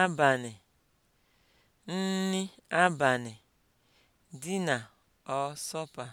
abalị, nri abalị, dina ọsọpa